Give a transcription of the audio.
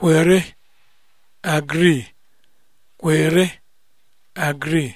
kwere agree kwere agree